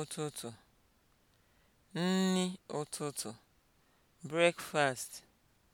ụtụtụ, nni ụtụtụ, breakfast